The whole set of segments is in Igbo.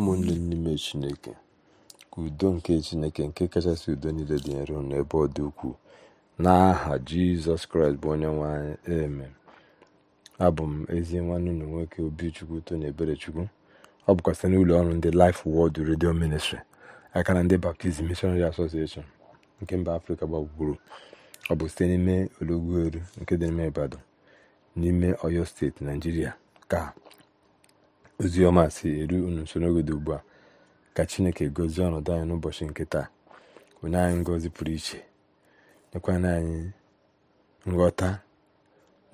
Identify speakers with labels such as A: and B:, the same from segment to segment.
A: ụmụnne n'ime chineke ka udo nke chineke nke kachasị udo niile dị nro n'ebe ọ dị ukwuu n'aha jizọs kraịst bụ onye nwanyị eme abụ m ezi nwanne ụlọ nwoke obichukwu tony eberechukwu ọ bụkwa site n'ụlọ ọrụ ndị Life Word redio ministri aka na ndị Baptist Missionary Association nke mba afrịka gbagburu ọ bụ site n'ime olugbu eru nke dị n'ime Ibadan n'ime Ọyọ steeti naijiria ka Ozioma si eru unu nso n'oge ugbu a ka chineke gozie ọnọdụ anyị n'ụbọchị nke taa onye anyị ngozi pụrụ iche nyekwana anyị nghọta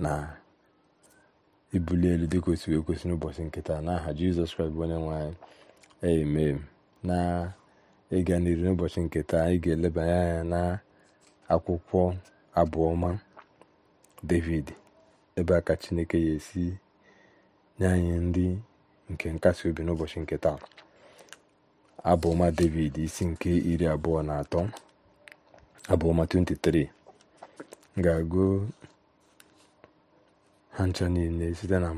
A: na ibuli elu dị kwesịrị kwesị n'ụbọchị nke taa n'aha jizọs kraịst bụ onye nwe anyị emem na ịga n'iru n'ụbọchị nke taa anyị ga-elebanye anya na akwụkwọ abụọma david ebe a ka chineke ya esi nye anyị ndị nke nkasi obi n'ụbọchị nke taa abụma david isi nke iri abụọ na atọ abụọma 23 ga-agụ ha ncha niile site na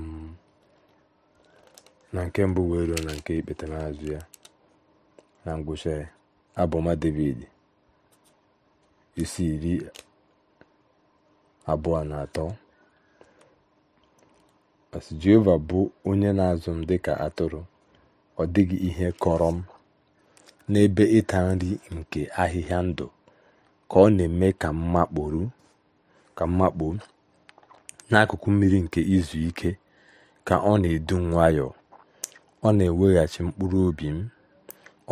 A: nke mbụ wee ruo na nke ikpeta n'azụ ya na ngwụcha ya abụọma david isi iri abụọ na atọ As Jehova bụ onye na azụ m dịka atụrụ, ọ dịghị ihe kọrọ m. N'ebe ịta nri nke ahịhịa ndụ ka ọ na eme ka m makpuo, n'akụkụ mmiri nke izu ike ka ọ na edu nwayọọ, ọ na eweghachi mkpụrụ obi m,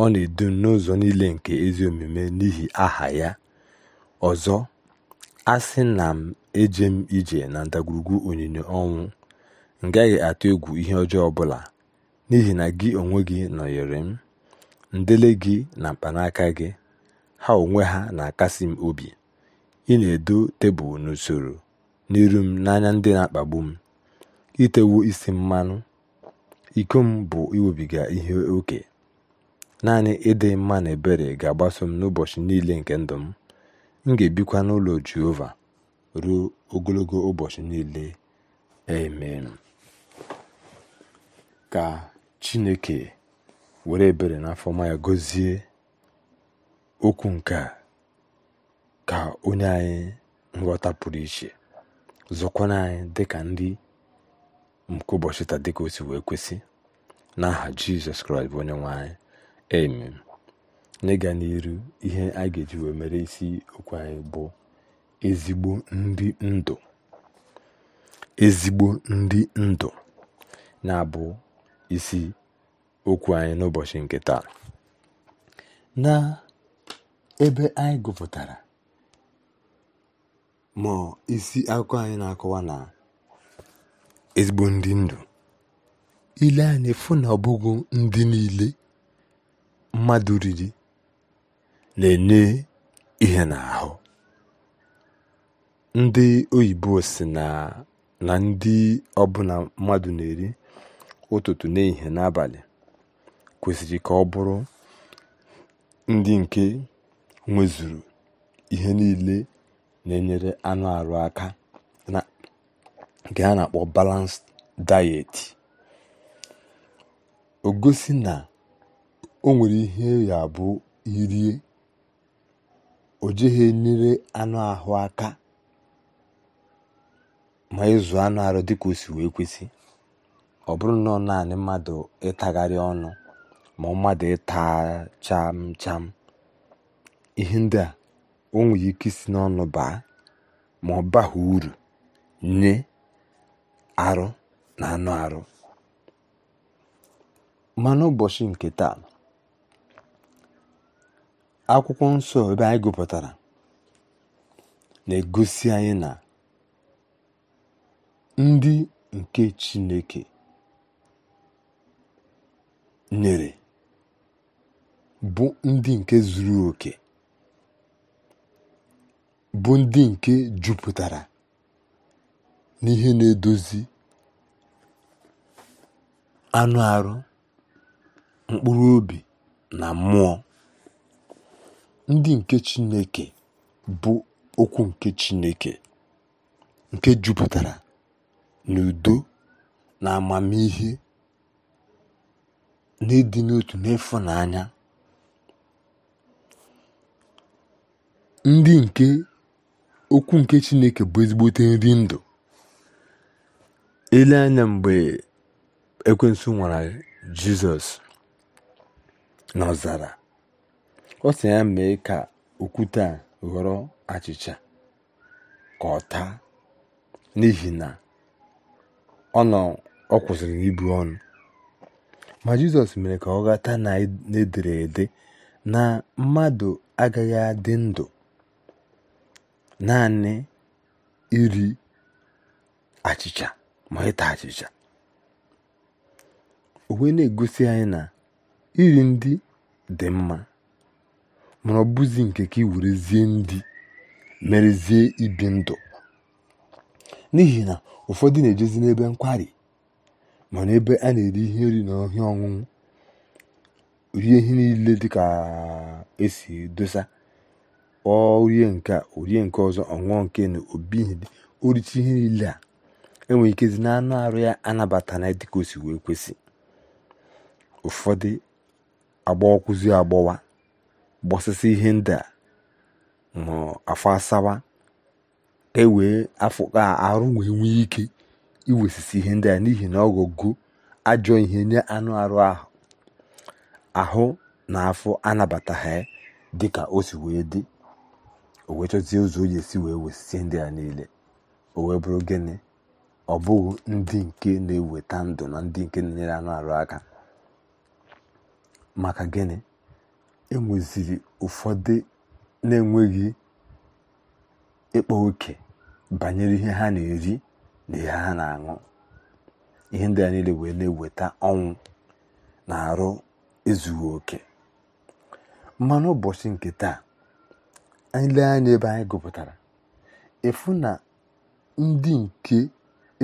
A: ọ na edu m n'ụzọ niile nke ezi omume n'ihi aha ya. Ọzọ, a sị na m eje m ije na ndagwurugwu onyinyo ọnwụ, m gaghị atụ egwu ihe ọjọọ ọbụla n'ihi na gị onwe gị nọnyere m ndele gị na mkpanaka gị ha onwe ha na-akasi m obi ị na-edo tebụl n'usoro n'iru m n'anya ndị na-akpagbu m itewo isi mmanụ iko m bụ iwebiga ihe oke naanị ịdị mma na ebere ga-agbaso m n'ụbọchị niile nke ndụ m m ga-ebikwa n'ụlọ Jehova ruo ogologo ụbọchị niile amen ka Chineke were ebere n'afọ afọma ya okwu nke a ka onye anyị nghọta pụrụ iche zọkwana anyị ka ndị nke ụbọchị taa dịka o si wee kwesị n'aha Jizọs Kraịst bụ onye nwe anyị amen n'ịga n'iru ihe a ga-eji wee mere isi okwu anyị bụ ezigbo ndị ndụ ezigbo ndị ndụ na-abụ isi okwu anyị n'ụbọchị nke taa na ebe anyị gụpụtara ma isi akụkọ anyị na-akọwa na ezigbo ndị ndụ ile anyị efu na ọbụghị ndị niile mmadụ riri na-enye ihe n'ahụ ndị oyibo si na na ndị ọbụla mmadụ na-eri ụtụtụ n'ihe n'abalị kwesịrị ka ọ bụrụ ndị nke nwezuru ihe niile na-enyere anụ ahụ aka na nke a na-akpọ balanced diet o gosi na o nwere ihe ya bụ irie o jeghị enyere anụ ahụ aka ma ịzụ anụ arụ dịka o si wee kwesị ọ bụrụ nọọ naanị mmadụ ịtagharị ọnụ ma mmadụ ịta cham cham ihe ndị a o ike isi n'ọnụ baa ma ọ baghị uru nye arụ na anụ arụ ma n'ụbọchị nke taa akwụkwọ nsọ ebe anyị gụpụtara na-egosi anyị na ndị nke chineke nyere bụ ndị nke zuru oke bụ ndị nke jupụtara n'ihe na-edozi anụ arụ mkpụrụ obi na mmụọ ndị nke Chineke bụ okwu nke Chineke nke jupụtara n'udo na amamihe n'ịdị n'otu anya ndị nke okwu nke chineke bụ ezigbote nri ndụ ile anya mgbe ekwensu nwara jizọs n'ọzara ọ sị ya mee ka okwute a ghọrọ achịcha ka ọ taa n'ihi na ọ nọ ọ kwụsịrị ibu ọnụ Ma Jizọs mere ka ọ ghọta na edere ede na mmadụ agaghị adị ndụ naanị iri achịcha ma ịta achịcha o na-egosi anyị na iri ndị dị mma mana ọ bụzi nke ka iwerezie ndị merezie ibi ndụ n'ihi na ụfọdụ na-ejezi n'ebe nkwari mana ebe a na-eri ihe nri na ọhịa ọṅụṅụ rie ihe niile dịka esi dosa orie nke orie nke ọzọ ọṅụọ nke na obihidi oricha ihe niile a enwere ikezi na anụ arụ ya anabata na dịka o si wee kwesị ụfọdụ agbawakwụzi agbọwa gbasasị ihe ndị a ma afọ asawa ka e wee afọ arụ wee nwee ike iwesisi ihe ndị a n'ihi na ọ ajọ ihe nye anụ arụ ahụ ahụ na afọ anabataghị dị ka o si wee dị o wee chọzie ụzọ o ji esi wee wesisi ndị a niile o wee bụrụ gịnị ọ bụghị ndị nke na-eweta ndụ na ndị nke na-enyere anụ arụ aka maka gịnị enweziri ụfọdụ na-enweghị ịkpa oke banyere ihe ha na-eri na ihe ha na-aṅụ ihe ndị a niile wee na-eweta ọnwụ na arụ ezughi oke ma n'ụbọchị nke taa anyị lee anya ebe anyị gụpụtara efu na ndị nke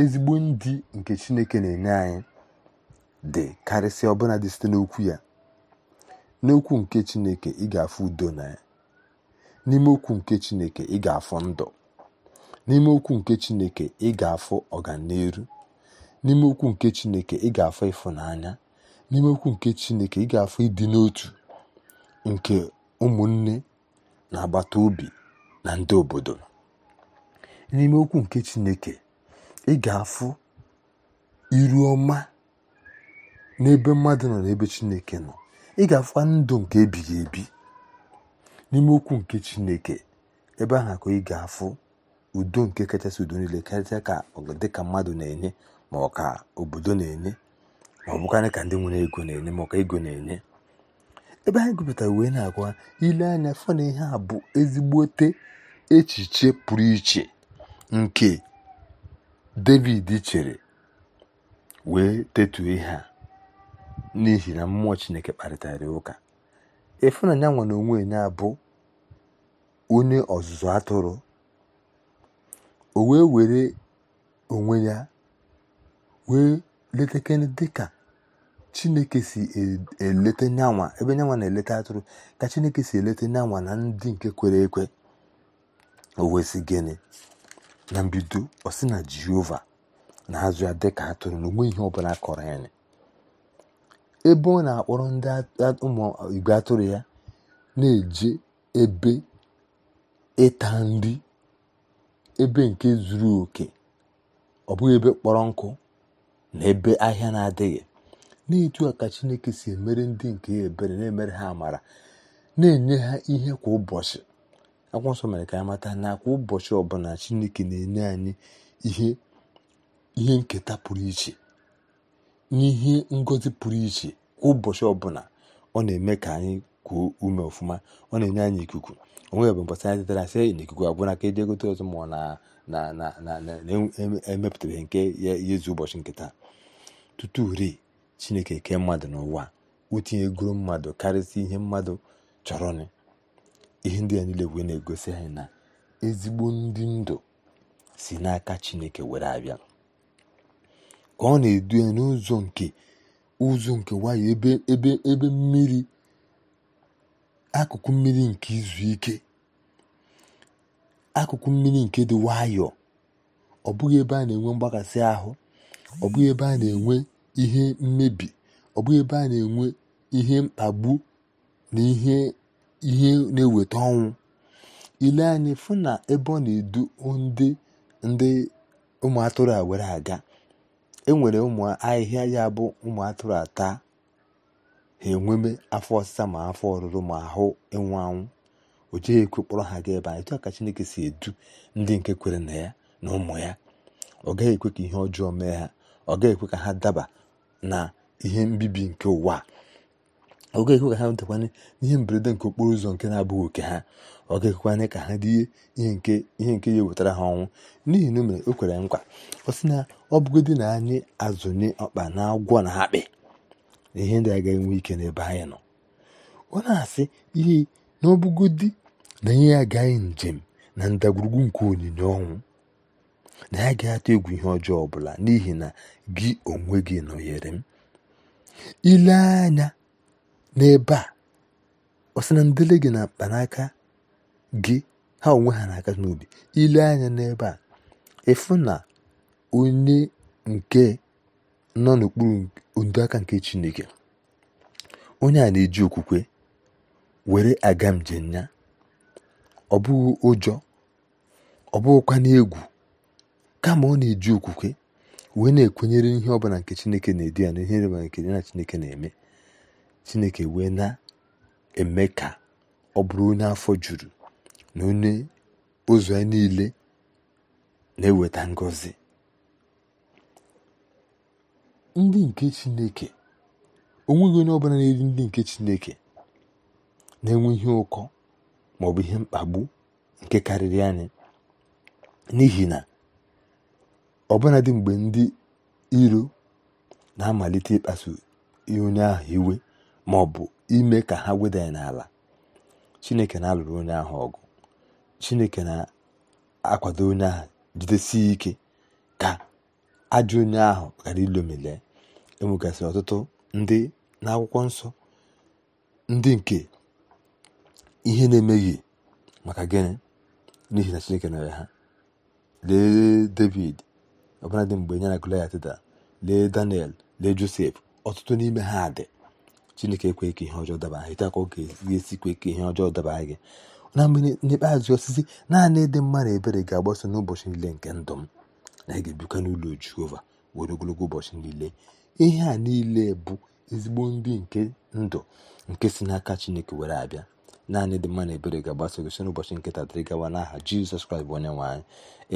A: ezigbo ndị nke chineke na-enye anyị dị karịsịa ọbụla dị site n'okwu ya n'okwu nke chineke ị ga-afụ udo na ya n'ime okwu nke chineke ị ga-afụ ndụ n'ime okwu nke chineke ị ga-afụ ọganiru n'ime okwu nke chineke ị ga-afụ ịfụnanya n'ime okwu nke chineke ị ga-afụ ịdị n'otu nke ụmụnne na agbata obi na ndị obodo n'ime okwu nke chineke ị ga-afụ iru ọma n'ebe mmadụ nọ n'ebe chineke nọ ị ga-afụkwa ndụ nke ebighị ebi n'ime okwu nke chineke ebe ahụ ka ị ga-afụ udo nke kachasị udo niile karịsịa ka dịka mmadụ na-enye ma ọ ka obodo na-enye ma ọ bụkarị ka ndị nwere ego na-enye ma ọ ka ego na-enye ebe anyị gụpụtara wee na-agwa ile anya fọ na ihe a bụ ezigbote echiche pụrụ iche nke david chere wee tetuo ihe a n'ihi na mmụọ chineke kparịtara ụka ịfụnanya nwa na onwe ya bụ onye ọzụzụ atụrụ o wee were onwe ya wee letekene dịka chineke si e, eleta nyanwa ebe nyanwa na-eleta atụrụ ka chineke si eleta nyanwa na ndị nke kwere ekwe owezi gịnị na mbido ọ na jehova na-azụ ya dịka atụrụ na onwe ihe ọbụla kọrọ anyị ebe ọ na-akpọrọ ndị ụmụ igwe atụrụ ya na-eje ebe ịta nri ebe nke zuru oke ọ bụghị ebe kpọrọ nkụ na ebe ahịa na-adịghị n'etu a ka chineke si emere ndị nke ya ebere na-emere ha amara na-enye ha ihe kwa ụbọchị akwụkwọ nsọ mere ka anyị mata na kwa ụbọchị ọbụla chineke na-enye anyị ihe ihe nketa pụrụ iche n'ihe ngozi pụrụ iche kwa ụbọchị ọbụla ọ na-eme ka anyị kuo ume ọfụma ọ na-enye anyị ikuku onwe bụ mpasa anyị tetara sị na ikuku abụrụ aka eji egote ọzọ ma na na na na na-emepụtabeghị e, e nke ya ezu ụbọchị nketa tutu ri chineke kee mmadụ n'ụwa o tinyegoro mmadụ karịsịa ihe mmadụ chọrọnụ ihe ndị ya niile wee na-egosi anyị na ezigbo ndị ndụ si n'aka chineke were abịa ka ọ na-edu ya n'ụzọ nke ụzọ nke nwayọ ebe ebe mmiri akụkụ mmiri nke izu ike akụkụ mmiri nke dị nwayọọ ọ bụghị ebe a na-enwe mgbakasị ahụ ọ bụghị ebe a na-enwe ihe mmebi ọ bụghị ebe a na-enwe ihe mkpagbu na ihe ihe na-eweta ọnwụ ile anyị fụ na ebe ọ na-edu ndị ndị ụmụ atụrụ a were aga enwere ụmụ ahịhịa ya bụ ụmụ atụrụ ata ha enweme afọ ọsịsa ma afọ ọrụrụ ma ahụ ịnwụ anwụ o jeghị ekwe kpọrọ ha ga ebe a etu ka chineke si edu ndị nke kwere na ya na ụmụ ya ọ gaghị ekwe ka ihe ọjọọ mee ha ọ gaghị ekwe ka ha daba na ihe mbibi nke ụwa ọ gaghị ekwe ka ha nwetekwanye n'ihe mberede nke okporo ụzọ nke na-abụghị oke ha ọ ga-ekwekwanye ka ha dị ihe nke ihe nke ya ewetara ha ọnwụ n'ihi na o mere o kwere nkwa ọ sị na ọ bụgodị na anyị azụnye ọkpa na agwọ na akpị na ihe ndị agaghị nwe ike n'ebe anyị nọ ọ na-asị ihe na na ihe ya agaghị njem na ndagwurugwu nke onyinye ọnwụ na ya ga-atụ egwu ihe ọjọọ ọbụla n'ihi na gị onwe gị nọnyere m ile anya n'ebe a ọ sị na ndele gị na mkpanaka gị ha onwe ha na-aka n'obi ile anya n'ebe a ịfụ na onye nke nọ n'okpuru ndo nke chineke onye a na-eji okwukwe were aga njem ya ọ bụghị ụjọ ọ bụghịkwa n'egwu kama ọ na-eji okwukwe wee na-ekwenyere ihe ọbụla nke chineke na-edi ya na ihe ịrịba nke ya na chineke na-eme chineke wee na-eme ka ọ bụrụ onye afọ juru na onye ụzọ ya niile na-eweta ngọzi ndị nke Chineke onweghị onye ọbụla na-eri ndị nke Chineke na-enwe ihe ụkọ ma ọ bụ ihe mkpagbu nke karịrị anyị n'ihi na ọbụna dị mgbe ndị iro na-amalite ịkpasu onye ahụ iwe ma ọ bụ ime ka ha weda n'ala Chineke na-alụrụ onye ahụ ọgụ Chineke na-akwado onye ahụ jidesi ike ka ajọ onye ahụ ghara ilomile enwegasịrị ọtụtụ ndị n'akwụkwọ nsọ ndị nke ihe na-emeghị maka gịnị n'ihi na chineke nyere ha lee david ọbụla dị mgbe ya na goliat da lee daniel lee josef ọtụtụ n'ime ha dị chineke ekweghị ka ihe ọjọọ daba ha ite aka ọ ga-esikwe ka ihe ọjọọ daba gị na mgbe n'ikpeazụ osisi naanị ịdị mma na ebere ga-agbaso n'ụbọchị niile nke ndụ m na ị ga-ebikwa n'ụlọ jehova were ogologo ụbọchị niile ihe a niile bụ ezigbo ndị nke ndụ nke si n'aka chineke were abịa naanị dị mma na ebere ga agbaso gị soro ụbọchị nkịta dịrị gawa n'aha jizọs kraịst bụ onye nwaanyị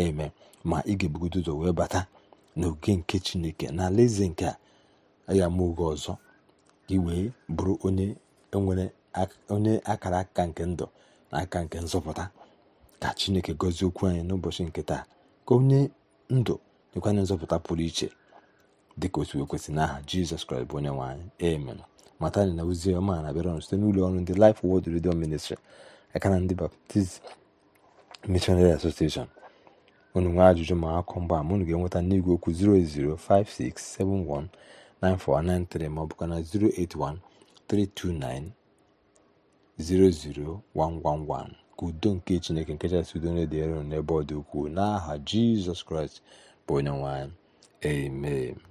A: eme ma ị ga-ebugodo ụzọ wee bata n'oge nke chineke na alaeze nke a ya ma oge ọzọ gị wee bụrụ onye nwere onye akara aka nke ndụ na aka nke nzọpụta ka chineke gọzie okwu anyị n'ụbọchị nke taa ka onye ndụ nyekwana nzọpụta pụrụ iche dịka otu ekwesị n'aha jizọs kraịst bụ onye nwaanyị amen matani na ozi ọma na-abịara site n'ụlọ ọrụ ndị Life Word Radio Ministri, aka na ndị Baptist Missionary Association unu nwee ajụjụ ma akọ mgba ma unu ga-enweta n'igwe okwu 0056719493 ma ọ bụkwa na 08132900111 ka udo nke Chineke nke kachasị udo na n'ebe ọ dị ukwuu n'aha Jizọs Kraịst bụ onye nwanyị. amen